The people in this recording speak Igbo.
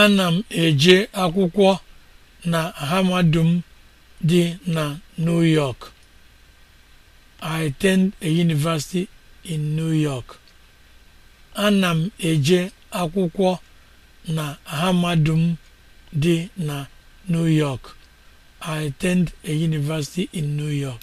ana m eje akwụkwọ na hamadum dị na new york i attend a m eje na new york i attend a university in new york